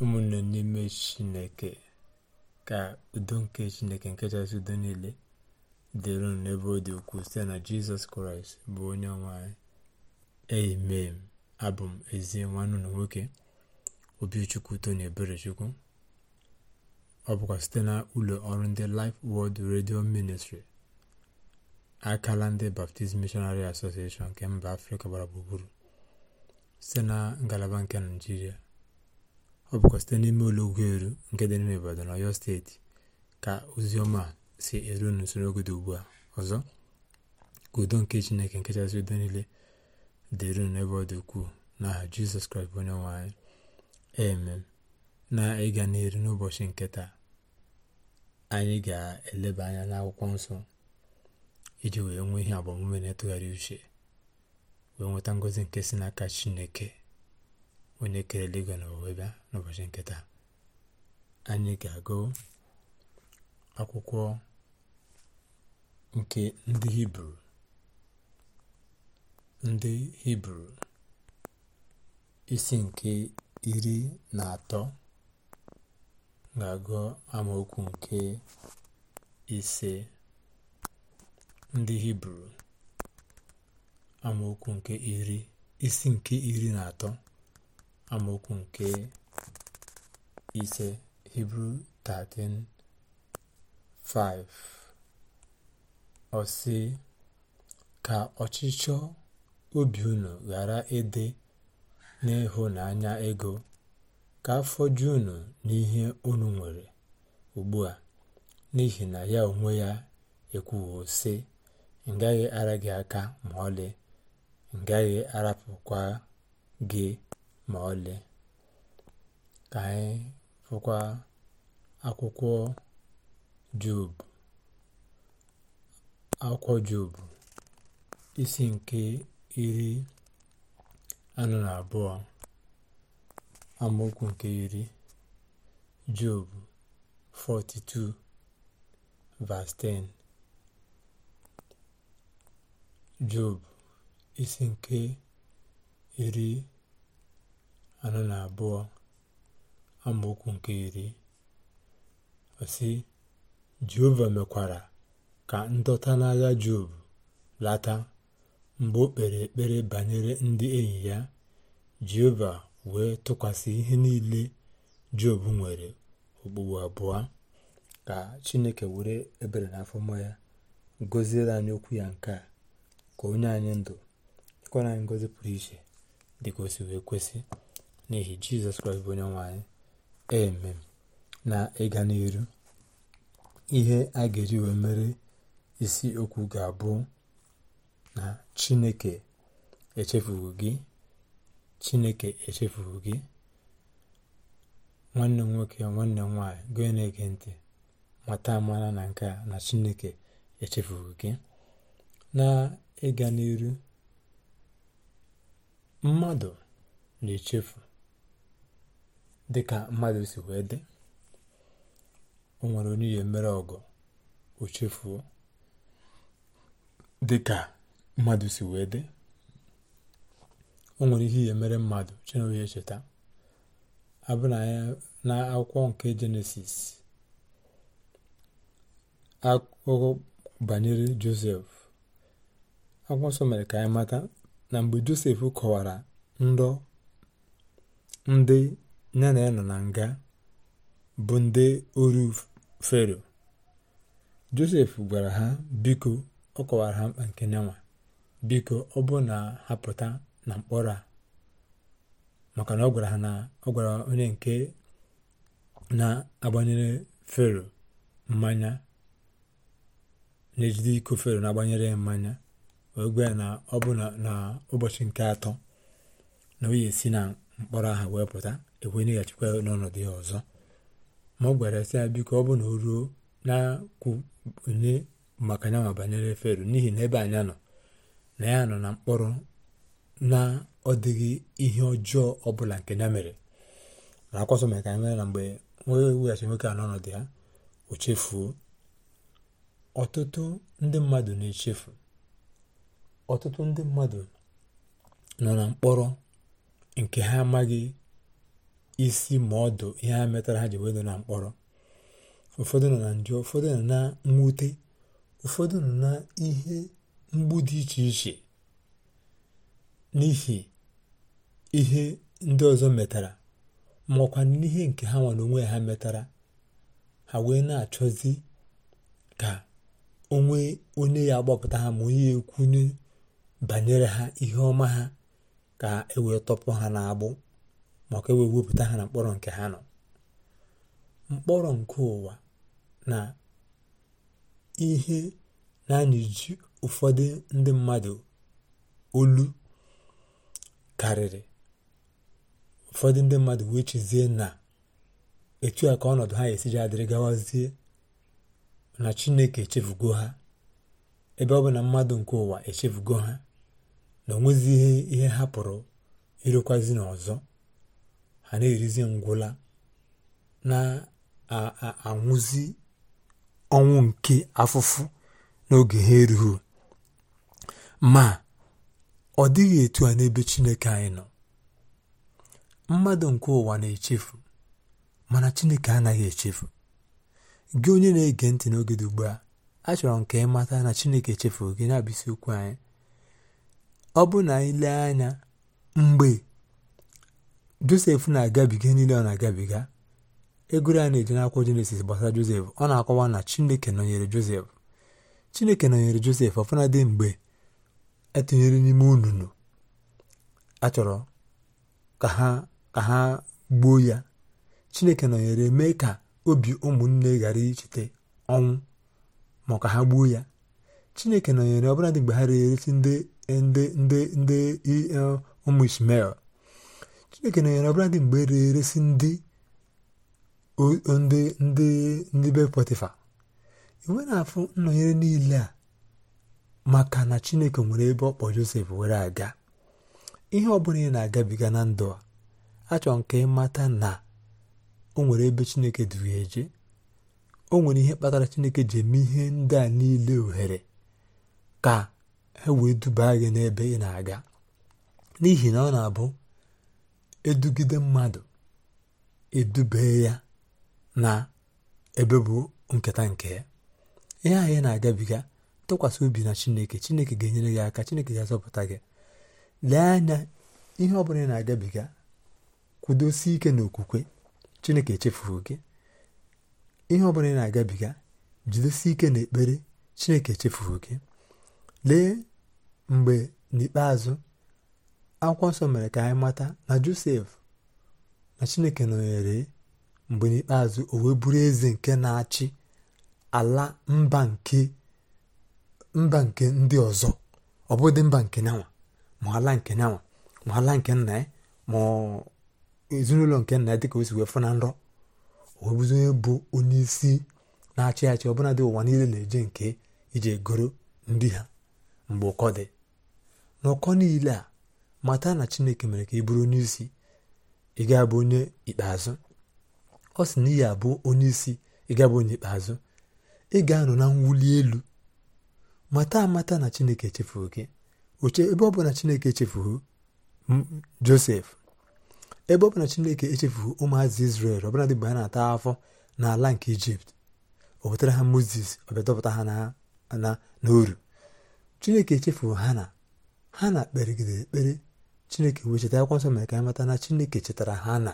ụmụnne n'ime chineke ka udo nke chineke nke chasị udo niile dịrị n'ebe ọ dị ukwuu site na jizọs kraịst bụ onye nwanyị m abụ m ezi nwanne na nwoke obichukwu tony eberechukwu ọ bụkwa site na ụlọ ọrụ ndị Life World redio Ministry akala ndị Baptist Missionary Association nke mba Afrịka gbara gburugburu site na ngalaba nke naijiria ọ bụkwa site n'ime ụlọ ugwu eru nke dị obodo na Ọyọ steeti ka oziọma si eru n'usoro oge ugbu a ọzọ ka udo nke Chineke nke chasị udo niile dịru n'ebe ọ dị ukwuu n'aha Jizọs Kraịst bụ onye nwe emem na ịga n'eru n'ụbọchị nke taa anyị ga-eleba anya n'akwụkwọ nsọ iji wee nwee ihe agbamume na-etụgharị uche wee nweta ngọzi nke si n'aka Chineke onye kere eluigwe na ụwa n'ụbọchị nke taa anyị ga-agụ akwụkwọ nke ndị hibru ndị hibru isi nke iri na atọ ga-agụ amaokwu nke ise ndị hibru amaokwu nke iri isi nke iri na atọ amaokwu nke ise hibru 13:5 ọ sị ka ọchịchọ obi unu ghara ịdị n'ịhụnanya ego ka afọ ju unu n'ihe unu nwere ugbu a n'ihi na ya onwe ya ekwuwo sị ngaghị ara gị aka ma ọlị ngaghị arapụkwa gị ma ọlị ka anyị fụkwa akwụkwọ Job akwụkwọ Job isi nke iri anọ na abụọ amaokwu nke iri Job 42 verse 10 isi nke iri anọ na abụọ amaokwu nke iri osi jehova mekwara ka ndọta n'agha job lata mgbe o kpere ekpere banyere ndị enyi ya jehova wee tụkwasị ihe niile job nwere okpugbu abụọ ka chineke were ebere na afọma ya gọziere anyị okwu ya nke a ka onye anyị ndụ chekwara anyị ngọzi pụrụ iche dịka o wee kwesị n'ihi jizọs kraịst bụ onye nwe anyị eme na ịga n'iru ihe a ga-eji wee mere isi okwu ga-abụ na chineke echefughị gị chineke echefughị gị nwanne m nwoke nwanne m nwaanyị gị na ntị mata amara na nke a na chineke echefughị gị na ịga n'iru mmadụ na-echefu dị ka mmadụ si wee dị o nwere onye ya emere ọgụ o chefuo dị ka mmadụ si wee dị o nwere ihe ya emere mmadụ chinonye echeta abụna ya na akwụkwọ nke jenesis akụkọ banyere josef akwụkwọ nsọ mere ka anyị mata na mgbe josef kọwara ndị nne na ya nọ na nga bụ ndị oru fero josef gwara ha biko ọ kọwara ha mkpa nke nyanwa biko ọ bụ na ha pụta na mkpọrọ a maka na ọ gwara ha na ọ gwara onye nke na-agbanyere fero mmanya na-ejide iko fero na-agbanyere mmanya wee gwa na ọ bụ na ụbọchị nke atọ na o yi esi na mkpọrọ ahụ wee pụta ekwe nyeghachikwa n'ọnọdụ ya ọzọ ma ọ gwara sị ya biko ọ bụ na o ruo na-akwụnye maka ya ma banyere fero n'ihi na ebe anyị nọ na ya nọ na mkpọrọ na ọ dịghị ihe ọjọọ ọbụla nke ya mere na akwọsọ mere ka anyị na mgbe onye weghachi nwoke a n'ọnọdụ ya o chefuo ọtụtụ ndị mmadụ na-echefu ọtụtụ ndị mmadụ nọ na mkpọrọ nke ha amaghị isi ma ọdụ ihe ha metara ha ji wedo na mkpọrọ ụfọdụ nọ na njọ ụfọdụ nọ na mwute ụfọdụ nọ na ihe mgbu dị iche iche n'ihi ihe ndị ọzọ metara maọkwa n'ihe nke ha nwere onwe ha metara ha wee na-achọzi ka onwe onye ya gbapụta ha ma onye ekwunye banyere ha ihe ọma ha ka e tọpụ ha n'agbụ ma ka e wee wepụta ha na mkpọrọ nke ha nọ mkpọrọ nke ụwa na ihe na ji ụfọdụ ndị mmadụ olu karịrị ụfọdụ ndị mmadụ wee chezie na etu a ka ọnọdụ ha esiji adịrị gawazie na chineke echefugo ha ebe ọ bụ na mmadụ nke ụwa echefugo ha na onwezi ihe ihe ha pụrụ ịrụkwazi n'ọzọ ha na-erizi ngwụla na-anwụzi ọnwụ nke afụfụ n'oge ha erughị ma ọ dịghị etu a n'ebe Chineke anyị nọ mmadụ nke ụwa na-echefu mana Chineke anaghị echefu gị onye na-ege ntị n'oge dị ugbu a achọrọ m ka ị na Chineke echefu gị na-abụ okwu anyị ọ bụ na anyị lee anya mgbe josef na-agabiga niile ọ na-agabiga egoro a na eje n'akwụkwọ jenesis gbasara josef ọ na-akọwa na chineke nọnyere josef chineke nọnyere josef dị mgbe etinyere n'ime ununu achọrọ ka ha ka ha gbuo ya chineke nọnyere mee ka obi ụmụnne ghara icheta ọnwụ ma ka ha gbuo ya chineke nọnyere ọbụladị mgbe ha reresi ndị ndị ndị ndị e, ụmụ ismael Chineke nọ ọbụla dị mgbe e rere eresi ndị ndị be potifa iwe na-afụ nnọnyere niile a maka na Chineke nwere ebe ọkpọ kpọ Josef were aga ihe ọ bụla ị na-agabiga na ndụ a achọrọ nke ịmata na o nwere ebe Chineke duru eje o nwere ihe kpatara Chineke ji eme ihe ndị a niile ohere ka e wee duba gị n'ebe ị na-aga n'ihi na ọ na-abụ edugide mmadụ edube ya na ebe bụ nketa nke ya ihe anyị na-agabiga tụkwasị obi na chineke chineke ga-enyere gị aka chineke ga-azọpụta gị lee anya ihe ọbụla ị na-agabiga kwudosie ike n'okwukwe chineke echefughị gị ihe ọbụla ị na-agabiga jidesie ike n'ekpere chineke echefughị gị lee mgbe n'ikpeazụ akwụkwọ nsọ mere ka anyị mata na josef na chineke nọnyere mgbe n'ikpeazụ o wee bụrụ eze nke na-achị ala mba nke mba nke ndị ọzọ ọ bụghị mba nke nyanwa ma ala nke nyanwa ma ala nke nna ya ma ezinụlọ nke nna ya dịka osi wee fụ na nrọ o bụ onye isi na-achị achị ọbụla dị ụwa niile na-eje nke iji goro ndị ha mgbe ụkọ dị n'ụkọ niile a mata na chineke mere ka ị bụrụ onye isi ị ga-abụ onye ikpeazụ ọ sị na iyi abụ onye isi ị ga-abụ onye ikpeazụ ị ga-anọ na mwuli elu mata amata na chineke echefuru gị oche ebe ọ bụ na chineke echefuru josef ebe ọ bụ na chineke echefughị ụmụazị israel ọbụladị mgbe ha na-ata afọ n'ala nke ijipt ọ pụtara ha moses ọ bịa dọpụta ha na n'oru chineke echefughị hana hana kperigidere ekpere chineke wee cheta akwụkwọ nsọ mere ka anyị na chineke chetara ha na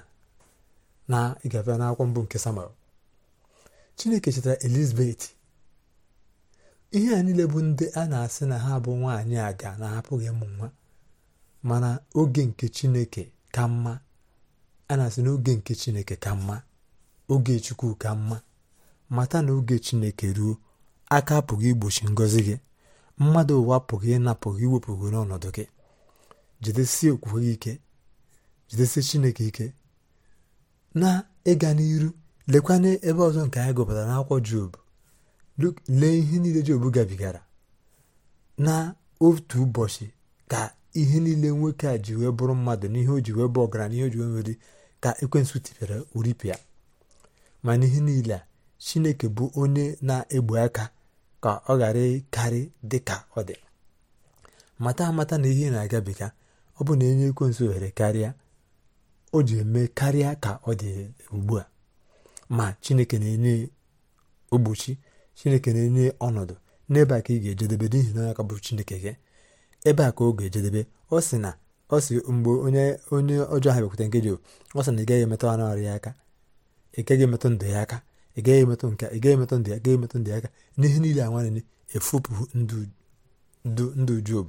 na ịgafe mbụ nke samuel chineke chetara elizabeth ihe a niile bụ ndị a na-asị na ha bụ nwaanyị aga na hapụghị ịmụ nwa mana oge nke chineke ka mma a na-asị na oge nke chineke ka mma oge chukwu ka mma mata na oge chineke ruo aka apụghị igbochi ngọzi gị mmadụ ụwa apụghị ịnapụghị iwepụghị n'ọnọdụ gị jidesie okwukwe gị ike jidesie chineke ike na ịga n'iru lekwana ebe ọzọ nke anyị gụpụtara n'akwụkwọ job lee ihe niile job gabigara na otu ụbọchị ka ihe niile nwoke a ji wee bụrụ mmadụ n'ihe o ji wee bụ ọgaranya n'ihe o ji wee nwere ka ekwensụ tipịara oripịa ma n'ihe niile a chineke bụ onye na-egbu aka ka ọ ghara ịkarị dị ka ọ dị mata amata na ihe na-agabiga ọ bụ na enye ekwensu ohere karịa o ji eme karịa ka ọ dị ugbu a ma chineke na-enye ogbochi chineke na-enye ọnọdụ n'ebe a ka ị ga-ejedebe n'ihi na aka bụ chineke gị ebe a ka ọ ga-ejedebe ọ sị na ọ sị mgbe onye onye ọjọọ ha nkeji nke Jehova ọ sị na ị gaghị emetụ anụ arụ ya aka ị emetụ ndụ ya aka ị gaghị emetụ nke ị gaghị emetụ ndụ ya gaghị emetụ ndụ ya aka n'ihe niile a nwanne efopụ ndụ Job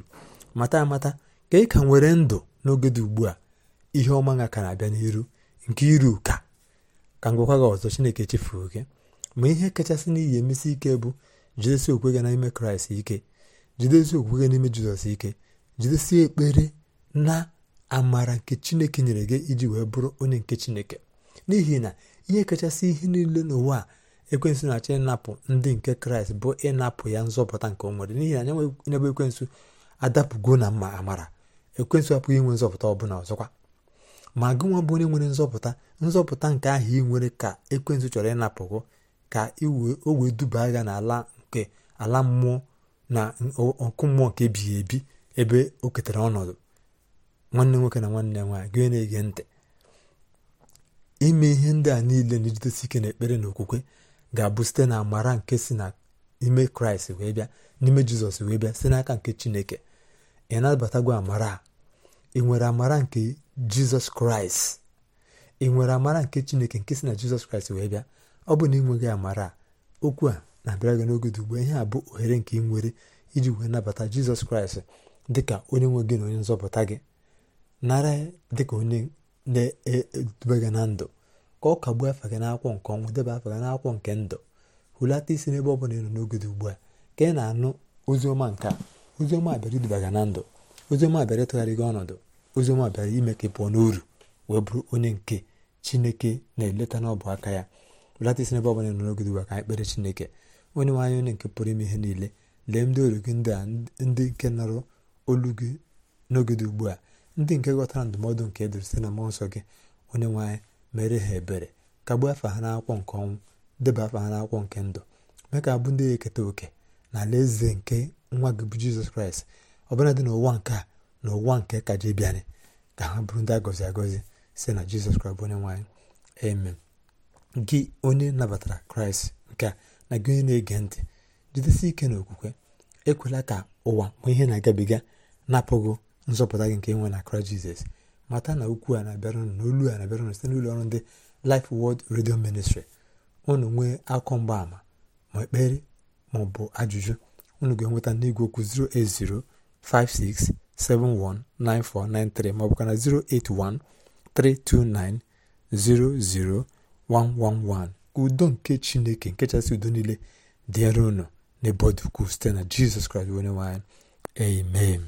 mata amata ka ị ka nwere ndụ n'oge dị ugbu a ihe ọma nga ka na-abịa n'iru nke iru ka ka ngụkwa gị ọzọ chineke chefuo gị ma ihe kachasị n'ihi emesi ike bụ jidesi okwe gị n'ime kraịst ike jidesi okwe gị n'ime jizọs ike jidesi ekpere na amara nke chineke nyere gị iji wee bụrụ onye nke chineke n'ihi na ihe kachasị ihe niile n'ụwa a ekwensụ na-achọ ịnapụ ndị nke kraịst bụ ịnapụ ya nzọpụta nke o nwere n'ihi na anya n'ebe ekwensụ adapụgo na mma amara ekwensụ apụghị inwe nzọpụta ọbụla ọzọkwa ma gị nwa bụ onye nwere nzọpụta nzọpụta nke ahụ ị nwere ka ekwensụ chọrọ ịnapụgo ka o wee duba agha na-ala nke ala mmụọ na ọkụ mmụọ nke ebighị ebi ebe o ketara ọnọdụ nwanne nwoke na nwanne nwaanyị gị na-ege ntị ime ihe ndị a niile na ejidesi ike na ekpere na okwukwe ga-abụ site na amara nke si ime kraịst wee bịa n'ime jizọs wee bịa site n'aka nke chineke ị nabatago amara ị nwere amara nke jizọs kraịst ị nwere amara nke chineke nke si na jizọs kraịst wee bịa ọ bụ na ị nweghị amara okwu a na-abịara gị n'oge dị ihe a bụ ohere nke ị nwere iji wee nabata jizọs kraịst dị ka onye nwe gị na onye nzọpụta gị nara dị ka onye na-edube gị na ndụ ka ọ kagbuo afa gị n'akwụkwọ nke ọnwụ deba afa gị n'akwụkwọ nke ndụ hulata isi n'ebe ọ bụla ị nọ n'oge ugbu a ka ị na-anụ ozi ọma nke a oziọma bịara idubaga na ndụ oziọma bịara ịtụgharị gị ọnọdụ oziọma bịara ime ka ị pụọ n'uru wee bụrụ onye nke chineke na-eleta n'ọbụ aka ya belata isi n'ebe ọbụla nọ n'oge duba ka chineke onye nwe onye nke pụrụ ime ihe niile lee ndị oru gị ndị a ndị nke nọrọ olu gị n'oge dị ugbu a ndị nke ghọtara ndụmọdụ nke edere site na mmụọ nsọ gị onye nwe mere ha ebere kagbuo afa ha n'akwụkwọ nke ọnwụ deba afa ha n'akwụkwọ nke ndụ mee ka abụ ndị eketa oke na ala eze nke nwa gị bụ jizọs kraịst dị n'ụwa nke a na ụwa nke kaje ka ha bụrụ ndị a gọzi agọzi si na jizọs kraịst bụ onye nwaanyị amen gị onye nabatara kraịst nke a na gị onye na-ege ntị jidesi ike na okwukwe ekwela ka ụwa ma ihe na-agabiga na nzọpụta gị nke nwe na kraịst jizọs mata na ukwu a na-abịara unu na olu a na-abịara site n'ụlọ ọrụ ndị lif Word redio ministri unu nwee akọ mgbaàmà ma ekpere ma ọ bụ ajụjụ unu ga-enweta n'igwe okwu 08056719493 maọbụ ka na 08132900111 udo nke chineke nke chasị udo niile dịere unu n'ebe ọ site na jizọs kraịst onye nwanyị amen